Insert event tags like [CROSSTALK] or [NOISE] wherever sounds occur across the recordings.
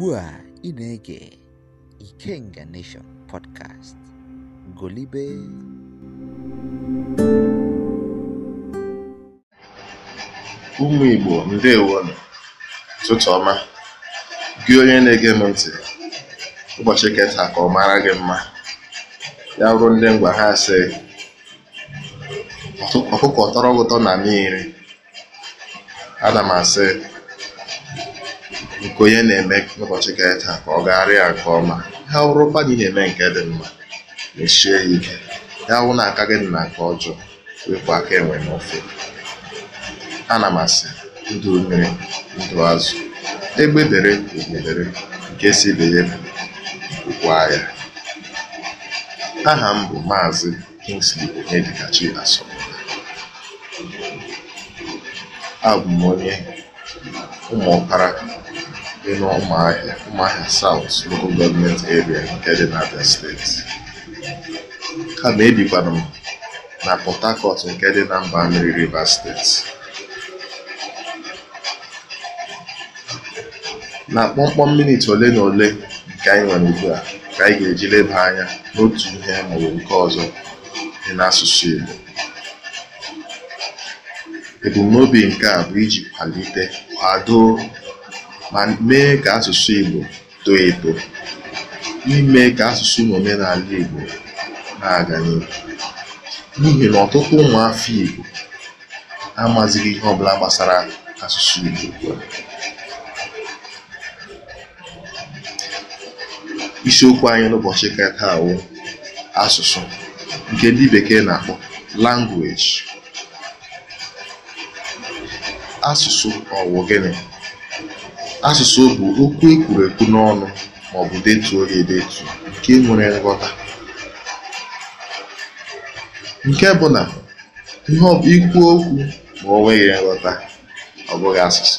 ugbu a ị na-ege Ikenga Nation podcast golibe ụmụ Igbo ndewonụ ụtụtụ ọma gị onye na-ege m ntị ụbọchị keta ka ọ mara gị mma ya ruo ndị ngwa ha sị ọkụkọ tọrọ ụtọ na mmiri ana m asị nke onye na-eme ụbọchị ka taa ka ọ gagharịa nke ọma ha wụrụkwa na ị na-eme nke dị mma mechie ya ike ya wụ na aka gị dị na nke ọjọọ wepụ aka enwe n'ofe ana m asị ndụ mmiri ndụ azụ egbe dere egbedere nke si be ya bụkwa ya aha m bụ maazị Kingsley Onyedikachi Asọmpi abụ m onye ụmụ ọkpara dị n'Ụmụahịa South Local Government Area) nke dị n'Abịa State, kama ebikwanụ m na Port Harcourt nke dị na mba mmiri Rivers State. Na kpọmkpọm minit ole na ole nke anyị nwere ugbu a ka anyị ga-eji leba anya n'otu ihe maọbụ nke ọzọ dị n'asụsụ Igbo. Ebumnobi nke a bụ iji kwalite, kwado ma mee ka asụsụ Igbo too eto, n'ime ka asụsụ n'omenala Igbo na-aga n'ihu. N'ihi na ọtụtụ ụmụafọ Igbo amazighị ihe ọ bụla gbasara asụsụ Igbo Isiokwu anyị n'ụbọchị katawo awụ asụsụ nke ndị bekee na-akpọ language. Asụsụ ọgwụ gịnị? Asụsụ bụ okwu e kwuru ekwu n'ọnụ maọbụ detuo ya edetu nke nwere nghọta, nke bụ na ikwu ikwu okwu ma o nweghị nghọta, ọ bụghị asụsụ.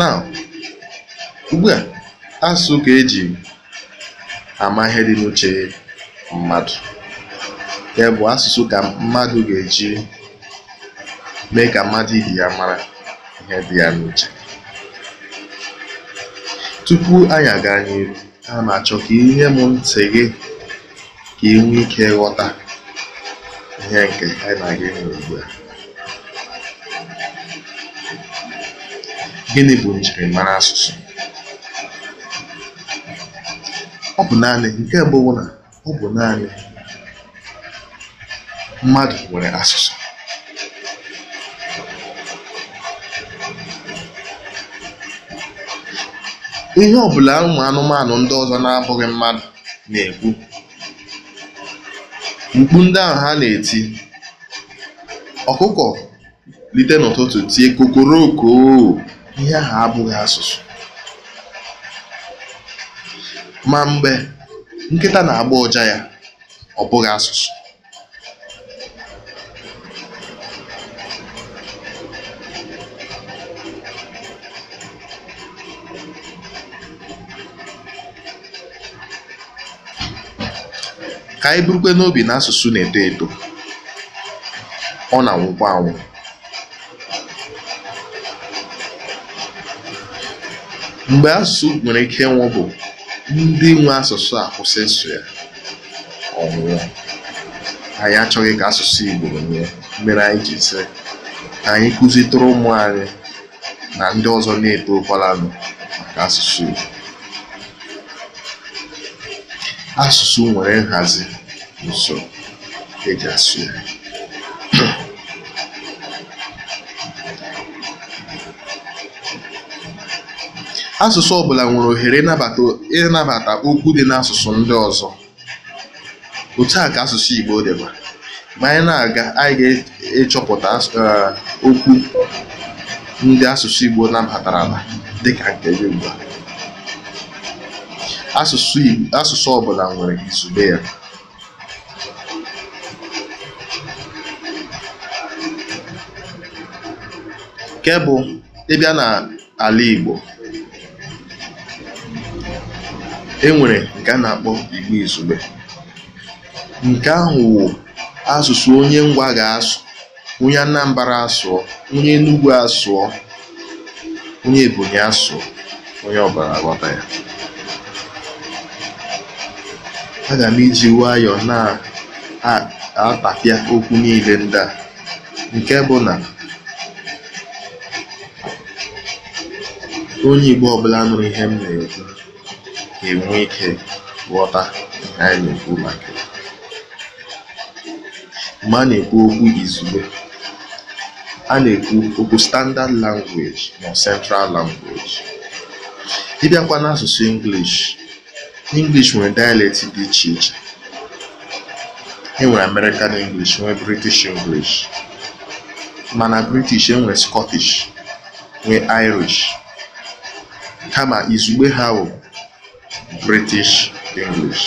Now, a asụsụ ka e ji ama ihe dị n'uche mmadụ, ya bụ asụsụ ka mmadụ ga-eji mee ka mmadụ ibe ya mara ihe dị ya n'uche. Tupu anyị aga n'ihu, a m achọ ka ị nye m ntị gị ka ị nwee ike ghọta ihe nke anyị na gị nwere ugbu a. Gịnị bụ njirimara asụsụ? Ọ bụ naanị nke mbụ bụ na ọ bụ naanị mmadụ nwere asụsụ. ihe ọ bụla ụmụ anụmanụ ndị ọzọ na-abụghị mmadụ na-ekwu, mkpu ndị ahụ ha na-eti, ọkụkọ lite n'ụtụtụ tie kokoroko ihe ahụ abụghị asụsụ. Ma mgbe nkịta na-agba ụja ya, ọ bụghị asụsụ. ka anyị burukwe n'obi na asụsụ na-eto eto ọ na-anwụkwa anwụ mgbe asụsụ nwere ike ịnwụ bụ ndị nwe asụsụ a kwụsị ịsụ ya ọnwụọ anyị achọghị ka asụsụ Igbo nwụọ mere anyị ji sị ka anyị kụzitụrụ ụmụ anyị na ndị ọzọ na-eto ụkwalanụ maka asụsụ Igbo asụsụ nwere nhazi usoro eji asụ ya [CLEARS THROAT] asụsụ ọbụla nwere ohere ịnabata okwu dị n'asụsụ ndị ọzọ otu a ka asụsụ Igbo dịba ma anyị na-aga anyị ga-echọpụta eh, okwu ndị asụsụ Igbo nabatara dị dịka nke gị ugbu Asụsụ ọbụla bụla nwere izugbe ya. Nke bụ ịbịa na n'ala Igbo, e nwere nke a na-akpọ Igbo izugbe. Nke ahụ wụ asụsụ onye Ngwa ga-asụ, onye Anambra asụọ, onye Enugwu asụọ, onye Ebonyi asụọ, onye ọbara aghọta ya. Aga m eji nwayọọ na-atapịa okwu niile ndị a, nke bụ na onye Igbo ọbụla nụrụ ihe m na-ekwu ga-enwe ike ghọta ihe anyị na-ekwu maka ya. Mgbe a na-ekwu okwu izugbe, a na-ekwu okwu Standard Language ma Central Language. Ị bịakwa n'asụsụ English English nwere dialect dị iche iche e nwere American English nwee British English mana British e nwere Scottish nwee Irish kama izugbe ha bụ British English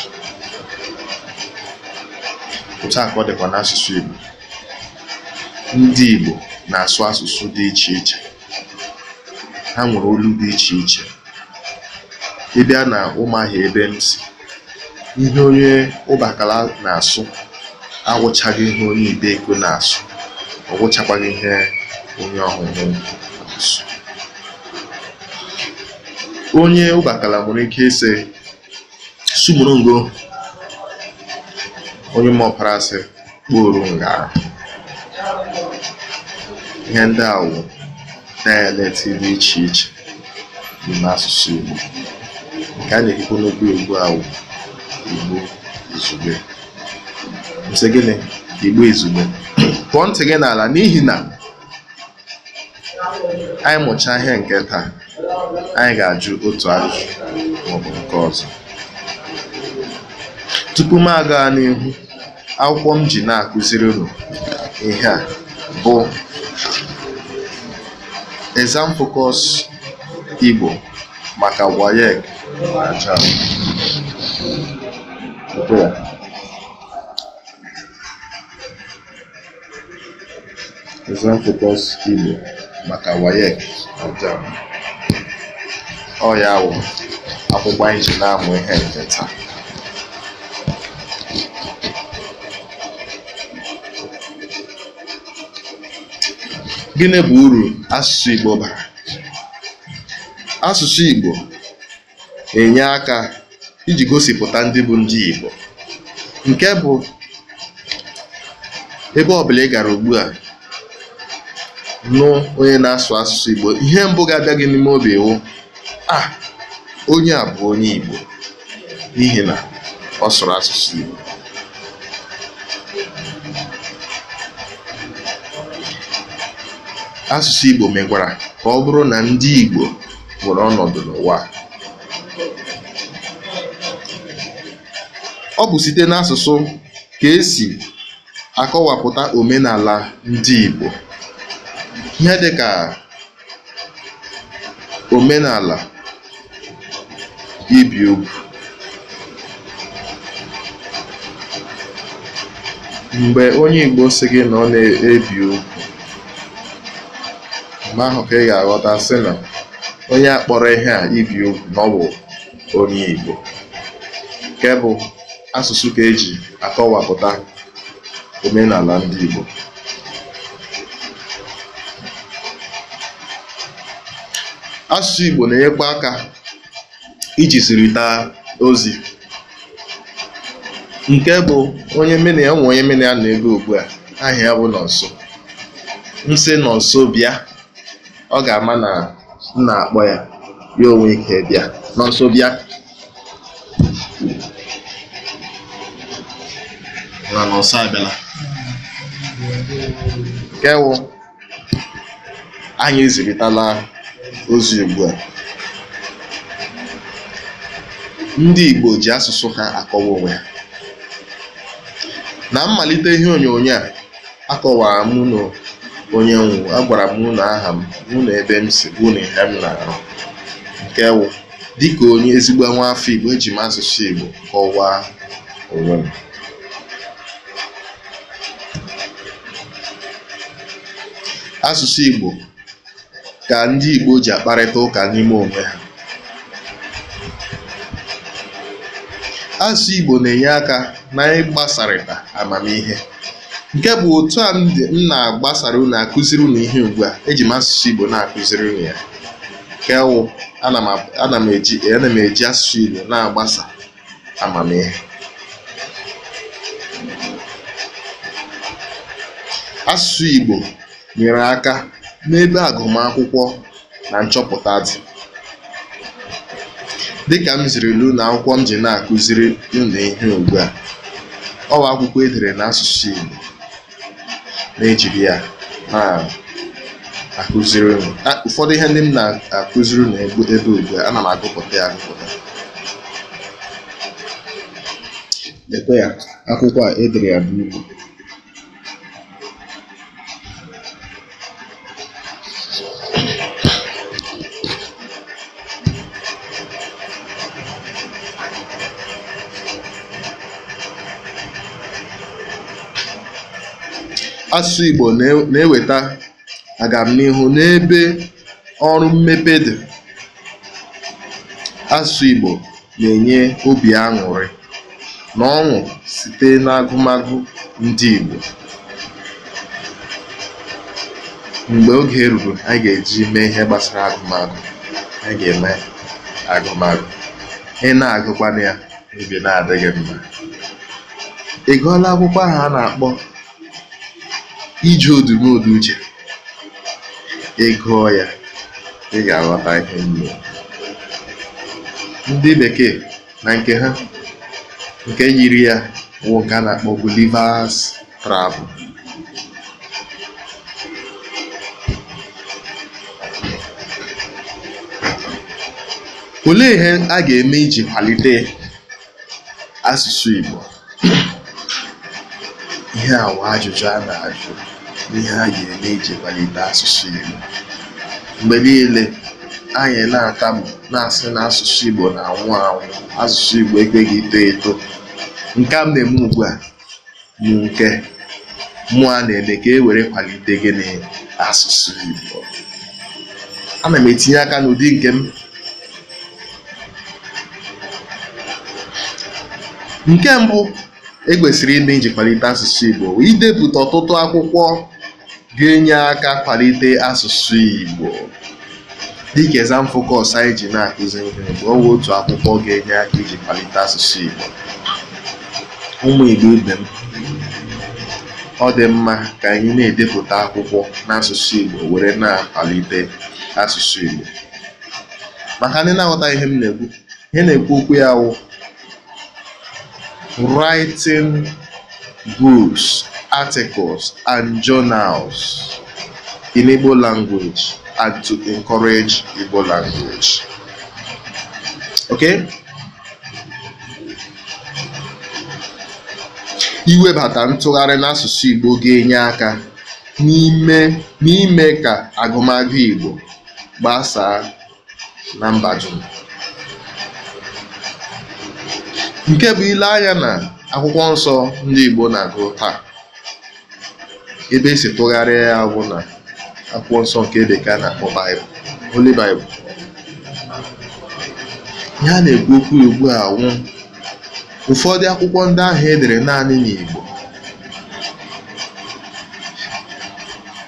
otu a ka ọ dịkwa n'asụsụ Igbo ndị Igbo na-asụ asụsụ dị iche iche ha nwere olu dị iche iche ị bịa na ụmụahịa ebe m si ihe onye ụbakala na-asụ agwụchaghị ihe onye ibeko na-asụ ọgwụchakwaghị ihe onye ọhụrụ na-asụ onye ụbakala nwere ike ịsị ngo onye mọpara asị kpọrọ nga ihe ndị a na dị iche iche dị n'asụsụ Igbo nke a na-ekwu n'okwu Igbo ahụ Igbo izugbe gịnị Igbo izugbe pụọ ntị gị n'ala n'ihi na anyị mụchaa ihe nke taa anyị ga-ajụ otu ajụjụ maọbụ nke ọzọ tupu m aga n'ihu akwụkwọ m ji na-akụziri unu ihe a bụ exam focus Igbo maka WAEC Ciao. Examfocus Igbo maka WAEC Ajam. Ọ ya wụ akwụkwọ anyị ji na-amụ ihe nke taa. Gịnị bụ uru asụsụ Igbo bara? Asụsụ Igbo enye aka iji gosipụta ndị bụ ndị Igbo nke bụ ebe ọbụla ị gara ugbu a nụ onye na-asụ asụsụ Igbo ihe mbụ ga-abịa gị n'ime obi iwu a onye a bụ onye Igbo n'ihi na ọ sụrụ asụsụ Igbo asụsụ Igbo mekwara ka ọ bụrụ na ndị Igbo nwere ọnọdụ n'ụwa Ọ bụ site n'asụsụ ka esi akọwapụta omenala ndị Igbo. Ihe dịka omenala ibi ugwu, mgbe onye Igbo si gị na ọ na-ebi ugwu, mgbe ahụ ka ị ga-aghọta sị na onye akpọrọ ihe a ibi ugwu na ọ bụ onye Igbo. Nke asụsụ ka eji akọwapụta omenala ndị Igbo asụsụ Igbo na-enyekwa aka iji taa ozi nke bụ onye mene ya nwe onye mene ya na-ego ugbu a aha ya bụ nọnso nsị nọnso bịa ọ ga-ama na m na-akpọ ya ya onwe ike bịa nọnso bịa na nọnso abịala nke anyị eziritala ozi ugbu a ndị Igbo ji asụsụ ha akọwa onwe ha na mmalite ihe onyonyo a akọwara m na onye nwụ agwara m na aha m mụ na ebe m si bụ na ihe m na-arụ nke wụ dịka onye ezigbo nwa afọ Igbo eji m asụsụ Igbo kọwaa onwe m Asụsụ Igbo ka ndị Igbo ji akparịta ụka n'ime onwe ha. Asụsụ Igbo na-enye aka na-agbasarịta amamihe. Nke bụ otu a m na-agbasara unu akụziri unu ihe ugbua, eji m asụsụ Igbo na-akụziri unu ya. Nke ana m eji asụsụ Igbo na-agbasa amamihe. Asụsụ Igbo nyere aka n'ebe agụmakwụkwọ na nchọpụta dị. Dịka m ziri na akwụkwọ m ji na-akụziri ụnụ ihe ugbu a, ọ akwụkwọ edere n'asụsụ Igbo na-ejiri ya na-akụziri ụnụ Ụfọdụ ihe ndị m na-akụziri ụnụ ebe ugbu a, ana m agụpụta ya agụpụta. a e ya bụ Igbo. Asụ Igbo na-eweta agamnihu n'ebe ọrụ mmepe dị, asụsụ Igbo na-enye obi aṅụrị na ọṅụ site n'agụmagụ ndị Igbo. Mgbe oge ruru anyị ga-eji mee ihe gbasara agụmagụ, anyị ga-eme agụmagụ. Ị na-agụkwanụ ya, obi na adịghị mma. Ị gụọla akwụkwọ ahụ a na-akpọ iji odumodu uche ị gụọ ya ị ga-aghọta ihe nne ndị bekee na nke ha nke yiri ya bụ na-akpọ Gulliver's Travel olee ihe a ga-eme iji kwalite asụsụ Igbo ihe awa ajụjụ a na-ajụ ihe a ji eme iji kwalite asụsụ Igbo. Mgbe niile, anyị na-atamu na-asị na asụsụ Igbo na-anwụ anwụ, asụsụ Igbo ekweghị ito eto. Nke a m na ugbu a bụ nke mụ a na-eme ka e were kwalite gịnị asụsụ Igbo. Ana m etinye aka n'ụdị nke m nke mbụ e kwesịrị ime iji kwalite asụsụ Igbo idepụta ọtụtụ akwụkwọ ga-enye aka kwalite asụsụ Igbo dịka exam focus anyị ji na-akụzi ihe bụ ọwa otu akwụkwọ ga-enye aka iji kwalite asụsụ Igbo ụmụ Igbo ibe m ọ dị mma ka anyị na-edepụta akwụkwọ n'asụsụ Igbo were na-akwalite asụsụ Igbo maka ndị na-aghọta ihe m na-ekwu ihe na-ekwu okwu ya wụ writing books articles and journals in Igbo language and to encourage Igbo language. Okay? Iwebata ntụgharị n'asụsụ Igbo ga-enye aka n'ime n'ime ka agụmagụ Igbo gbasaa na mba dum. Nke bụ ile anya na akwụkwọ nsọ ndị Igbo na-agụ taa. ebe esi tụgharịa ya bụ na akwụkwọ nsọ nke bekee na-akpọ baịbụl Holy Bible ihe a na-ekwu okwu ugbu a nwụ ụfọdụ akwụkwọ ndị ahụ edere naanị n'Igbo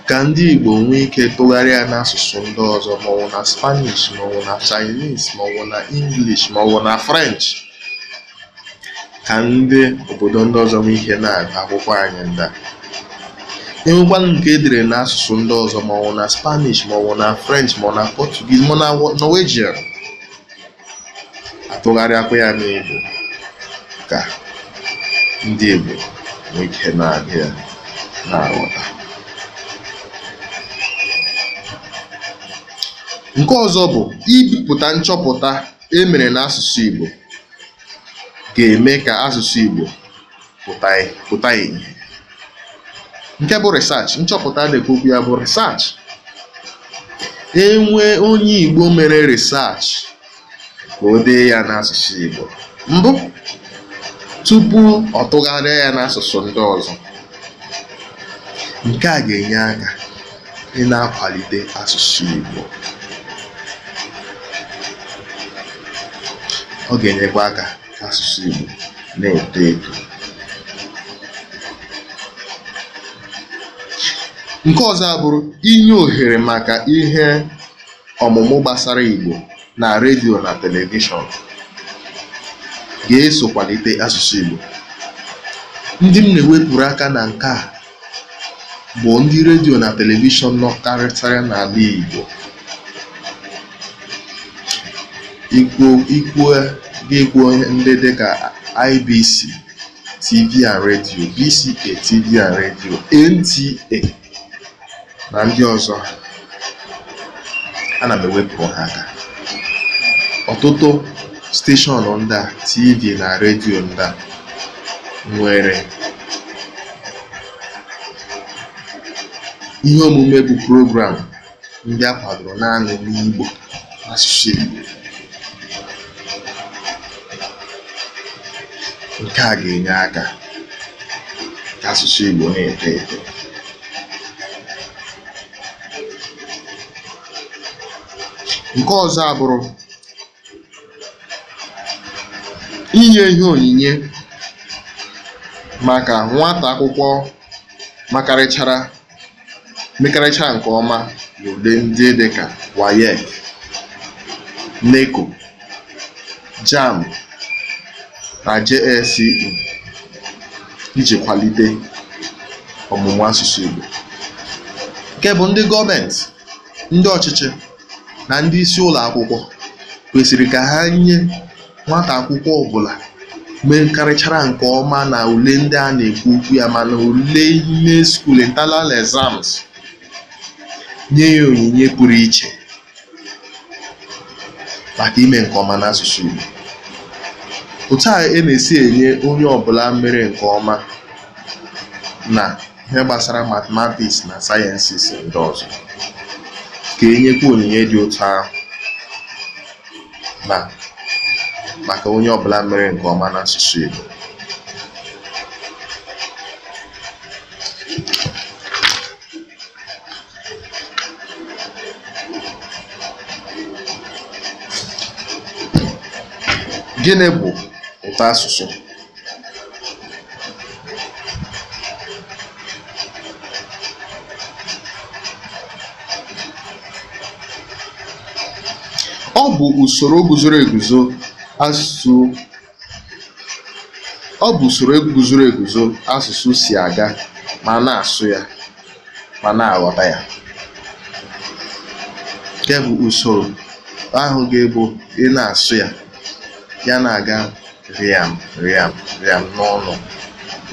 ka ndị Igbo nwee ike tụgharịa n'asụsụ ndị ọzọ maọbụ na Spanish maọbụ na Chinese maọbụ na English maọbụ na French ka ndị obodo ndị ọzọ nwee ihe na-agụ akwụkwọ anyị ndị a e nke e dere n'asụsụ ndị ọzọ ma maọbụ na Spanish ma maọbụ na French ọ na Portuguese maọbụ na Norwegian atụgharịakwa ya n'Igbo ka ndị Igbo nwee na-aga na-aghọta nke ọzọ bụ ibipụta nchọpụta e mere n'asụsụ Igbo ga-eme ka asụsụ Igbo pụta ìhè nke bụ research nchọpụta dịka okwu ya bụ research e nwee onye Igbo mere research ka o dee ya n'asụsụ Igbo mbụ tupu ọ tụgharịa ya n'asụsụ ndị ọzọ nke a ga-enye aka ị na-akwalite asụsụ Igbo ọ ga-enyekwa aka asụsụ Igbo na-eto eto nke ọzọ abụrụ inye ohere maka ihe ọmụmụ gbasara igbo na redio na telivishọn ga-esokwalite asụsụ igbo Ndị m na-ewepụrụ aka na nke a bụ ndị redio na telivishọn nọ karịtara n'ala igbo Ikwuo ikwuo gị ndị dịka IBC, TV and radio, BCA, TV and NTA na ndị ọzọ ana m ewepụ ha aka ọtụtụ steshọn ndị a TV na redio ndị a nwere ihe omume bụ program ndị a kwadoro naanị n'Igbo asụsụ Igbo nke a ga-enye aka nke asụsụ Igbo na-eto eto Nke ọzọ abụrụ inye ihe onyinye maka nwata akwụkwọ mekarịchara nke ọma n'ụdị ndị dịka WAEC, NECO, JAMB, na JSCE iji kwalite ọmụmụ asụsụ Igbo, nke bụ ndị gọọmentị, ndị ọchịchị na ndị isi ụlọ akwụkwọ kwesịrị ka ha nye nwata akwụkwọ ọbụla mekarịchara nke ọma na ule ndị a na-ekwu okwu ya mana ule ime skuul (internal exams) nye ya onyinye pụrụ iche maka ime nke ọma n'asụsụ Igbo. Otu a e na-esi enye onye ọbụla mere nke ọma na ihe gbasara mathematics na sayensịs ndị ọzọ ka e nyekwa onyinye dị ụtọ ahụ na maka onye ọbụla mere nke ọma n'asụsụ Igbo gịnị bụ ụtọ asụsụ Ọ bụ usoro guzoro eguzo asụsụ si aga ma na-asụ ya ma na-aghọta ya. Nke bụ usoro ahụ ga-ebu ị na-asụ ya, ya na-aga rịam rịam rịam n'ọnụ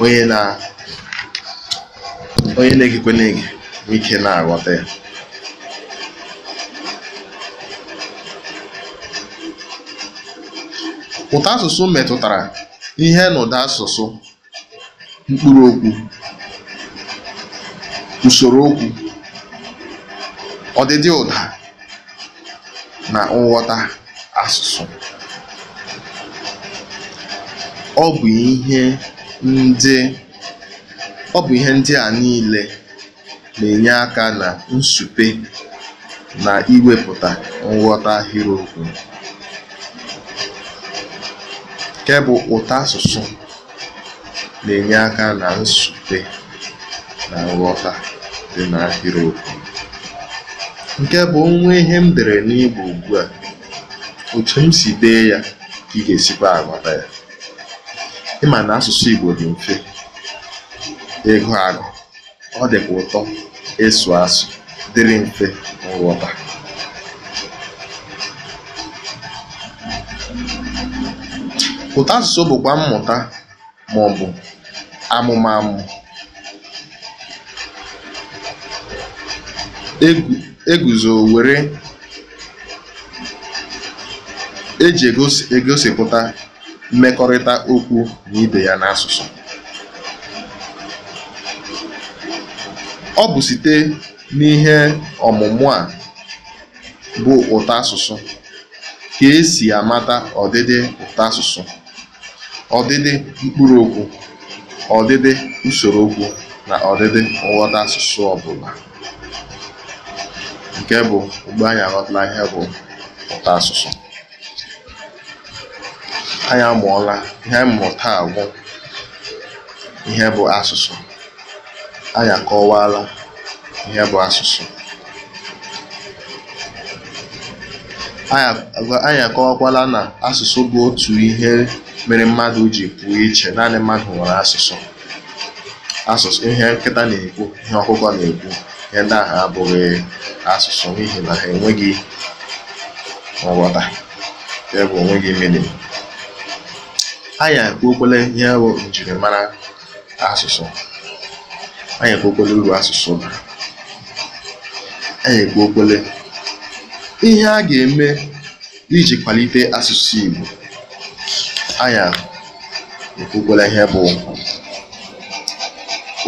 onye na-egekwe na-ege nwee ike na-aghọta ya. Ụtọ asụsụ metụtara ihe asụsụ mkpụrụ asụsụ, usoro okwu ọdịdị ụda, na nghọta asụsụ. Ọ bụ ihe ndị a niile na-enye aka na nsupe na iwepụta nghọta ahịrịokwu. nke bụ ụta asụsụ na-enye aka na nsute na nghọta dị n'ahịrịokwu nke bụ onwe ihe m dere n'igbo ugbu a òtù m si dee ya ka ị ga-esikwa aghọta ya ị na asụsụ igbo Ìgbò mfe ịgụ agụ àgụ̀ ọ ka ụtọ esu asụ dịrị mfe nghọta asụsụ bụkwa mmụta maọbụ amụmamụ e guzo were eji egosipụta mmekọrịta okwu na ibe ya n'asụsụ. Ọ bụ site n'ihe ọmụmụ a bụ asụsụ ka esi amata ọdịdị asụsụ. ọdịdị mkpụrụ mkpụrụokwu, ọdịdị usoro usorookwu, na ọdịdị nghọta asụsụ ọbụla. Nke bụ ugbo anyị aghọtala ihe bụ ụta asụsụ. Anyị amụọla, ihe mmụta agwụ ihe bụ asụsụ. Anyị akọwaala ihe bụ asụsụ. anyị akọwakwala na asụsụ bụ otu ihe mere mmadụ ji pụọ iche naanị mmadụ nwere asụsụ asụsụ ihe nkịta na-ekwu ihe ọkụkọ na-ekwu ihe ndị ahụ abụghị asụsụ n'ihi na ha enweghị nghọta ebe onweghị mmiri anyị ekwuokwele ihe bụ njirimara asụsụ anyị ekwuokwele uru asụsụ anyị ekwuokwele ihe a ga-eme iji kwalite asụsụ igbo anya èkwukwala ihe bụ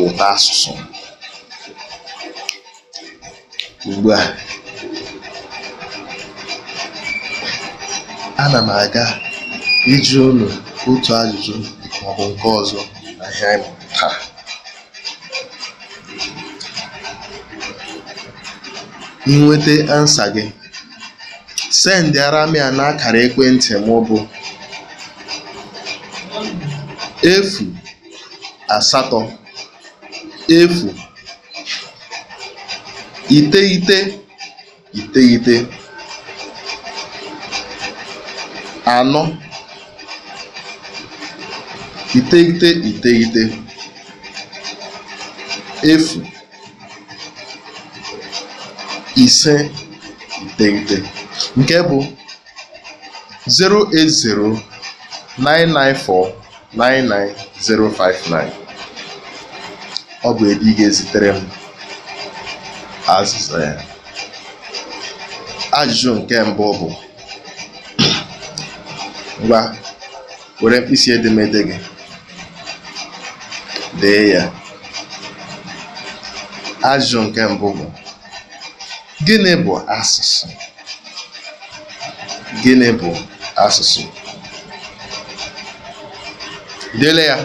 ụta asụsụ. ugbu a ana m aga iji unu otu ajụjụ maọbụ nke ọzọ na ihe taa ị ansa gị sendịara aramia na n'akara ekwentị m bụ efu asatọ efu iteghete iteghete anọ iteghete iteghete efu ise iteghete Nke bụ 08099499059 ọ bụ ebe ị ga-ezitere m azịza ya ajụjụ nke mbụ bụ ngwa were mkpịsị edemede gị dee ya ajụjụ nke mbụ bụ gịnị bụ asụsụ Gịnị bụ asụsụ? Dele ya.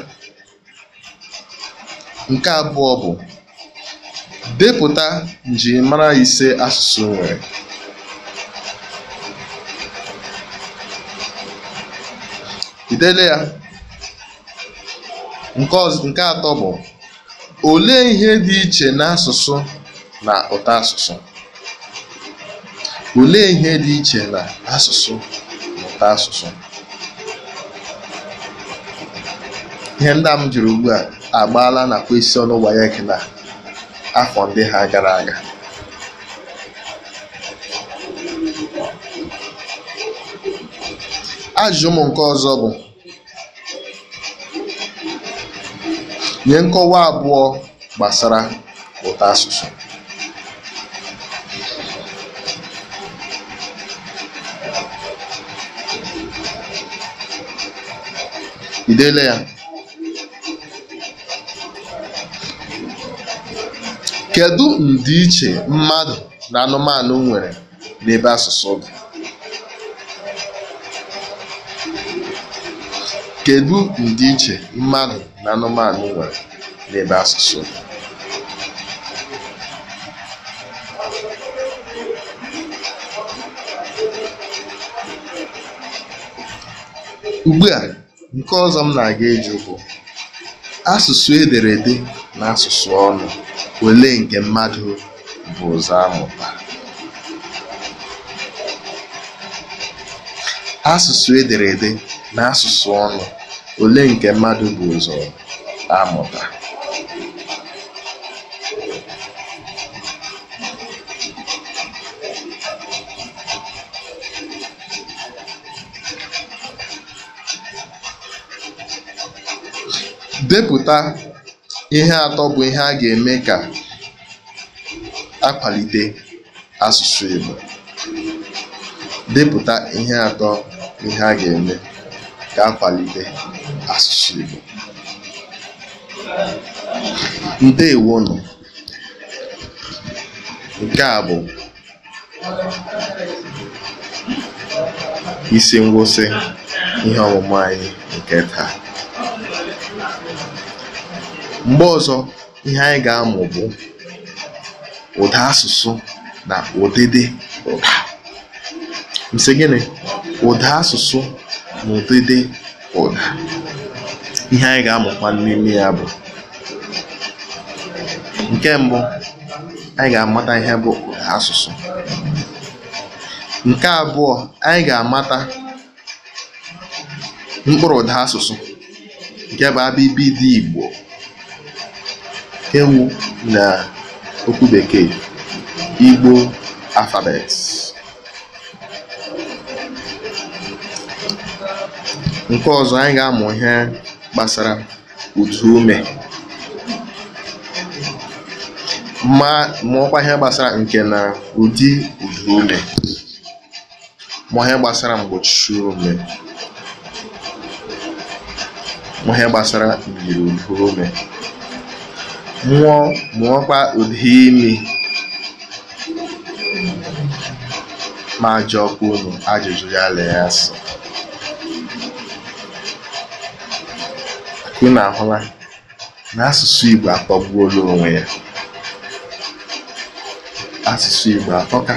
Nke abụọ bụ depụta njirimara ise asụsụ e nwere. ya. Nke atọ bụ olee ihe dị iche n'asụsụ na asụsụ? Olee ihe dị iche na asụsụ mụta asụsụ Ihe ndị a m jụrụ ugbu a agbaala na question WAEC na afọ ndị ha gara aga. Ajụjụ m nke ọzọ bụ nye nkọwa abụọ gbasara asụsụ. Idele deela ya? Kedu ndiiche mmadụ na anụmanụ nwere n'ebe asụsụ dị? Kedu ndiiche mmadụ na anụmanụ nwere n'ebe asụsụ dị? Ugbu a Nke ọzọ m na-aga ịjụ bụ, asụsụ ederede na asụsụ ọnụ, ole nke mmadụ bụ ụzọ Asụsụ ederede na asụsụ ọnụ, ole nke mmadụ bụ ụzọ amụta? Depụta ihe atọ bụ ihe a ga-eme ka a asụsụ Igbo. Depụta ihe atọ ihe a ga-eme ka akwalite asụsụ Igbo. Nke a bụ isi ngwụsị ihe ọmụmụ anyị nke taa. Mgbe ọzọ, ihe anyị ga-amụ bụ ụda asụsụ na ụdịdị ụda. Nsị gịnị? Ụda asụsụ na ụdịdị ụda. Ihe anyị ga-amụkwa n'ime ya bụ nke mbụ, anyị ga-amata ihe bụ ụda asụsụ. Nke abụọ, anyị ga-amata mkpụrụ ụda asụsụ nke bụ dị Igbo Henwu na okwu Bekee, Igbo alfabet Nke ọzọ, anyị ga-amụ ihe gbasara ume ma mụọkwa ihe gbasara nke na ụdị ume, mụọ ihe gbasara mgbochi ume, mụọ ihe gbasara myiri ume nwụọ mụọkwa ụdị imi ma jụọkwa unu ajụjụ ya lee ya sọ na ahụla na asụsụ Igbo akpọgbuola onwe ya asụsụ Igbo akpọka.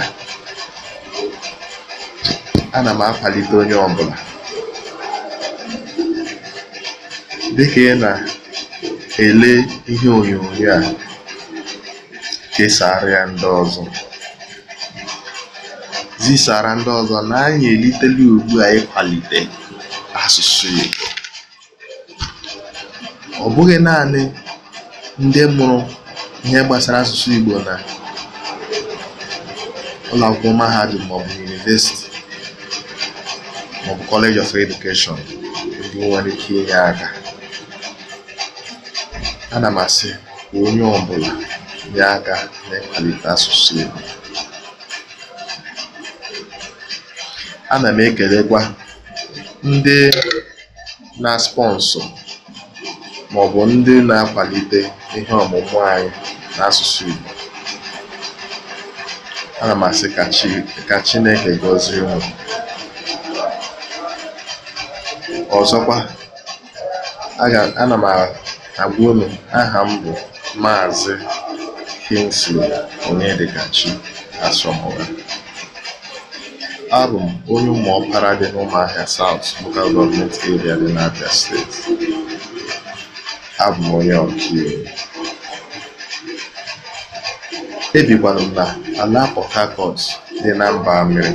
ana m akwalite onye ọbụla dịka ị na ele ihe onyonyo a kesàara ya ndị ọzọ zisara ndị ọzọ na anyị elitela ugbua a ịkwalite asụsụ Igbo ọ bụghị naanị ndị mụrụ ihe gbasara asụsụ Igbo na ụlọakwụkwọ mahadum maọbụ yunivesiti maọbụ kọleji of edukeshọn ndị nwere ike inye aka Ana m asị ka onye ọbụla nye aka n'ịkwalite asụsụ Igbo. Ana m ekelekwa ndị na-sponsọ maọbụ ndị na-akwalite ihe ọmụmụ anyị n'asụsụ Igbo. Ana m asị ka Chineke gọzie unu. Ọzọkwa, ana m Agboolu Aha m bụ Maazị Kingsley Onyedịkachi Asomugha. Abụ m onye ọkara dị n'Ụmụahịa South Local Government Area dị n'abia Steeti. Abụ m onye ọkaiwu. Ebikwanụ m na ala Port dị na Mba Amịrị.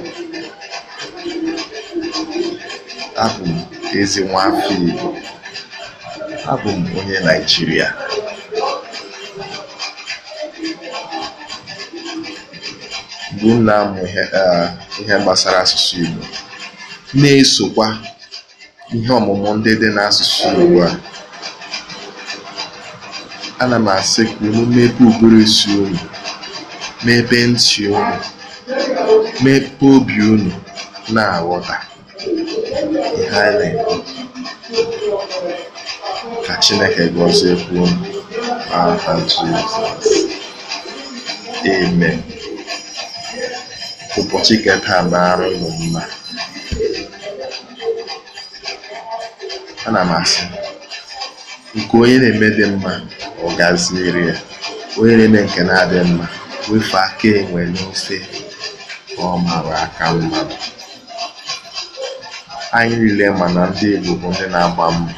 Abụ m ezi nwa afọ Igbo. Abụ m onye Naịjirịa bụ m na-amụ ihe gbasara asụsụ Igbo na-esokwa ihe ọmụmụ ndị dị n'asụsụ Igbo a. Ana m asị ka unu unu, mepe ntị unu, mmepe obi unu na-aghọta ihe a na-ekwu. Chineke gọziekwa unu n'aha Jizọs amen ụbọchị kata na-arụ ụmụ mma ana m asị nke onye na-eme dị mma ọ gaziere ya onye na-eme nke na-adị mma wefe aka enwe n'ose ka ọ mara aka mma. anyị niile ma na ndị Igbo bụ ndị na-agba mma.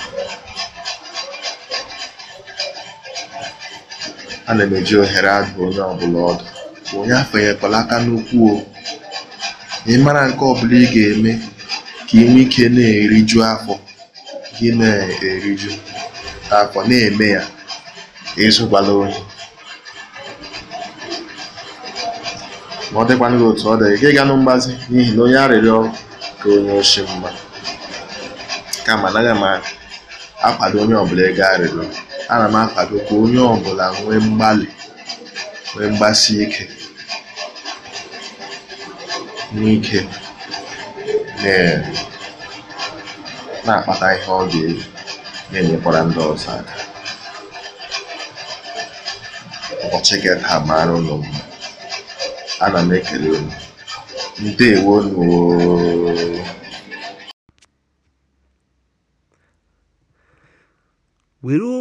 ana m eji ohere adụ onye ọbụla ọdụ onye afọnyekwala aka n'ukwu o ị mara nke ọbụla ị ga-eme ka ị nwee ike na-eriju afọ gị na-eriju afọ na-eme ya ịzụkwala ohi ma ọ dịkwana gị otu ọ dị gị ga mgbazi n'ihi na onye arịrịọ ka onye oshi mma kama anaghị m akwado onye ọbụla ego arịrịọ ana m akwado ka onye ọ bụla nwee mgbalị nwee mgbasi ike n'ike na-akpata ihe ọ ga-eyi na-enyekwara ndị ọzọ aka ụbọchị gị taa mara ụlọ m ana m ekele unu ndewo were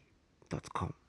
gmail.com.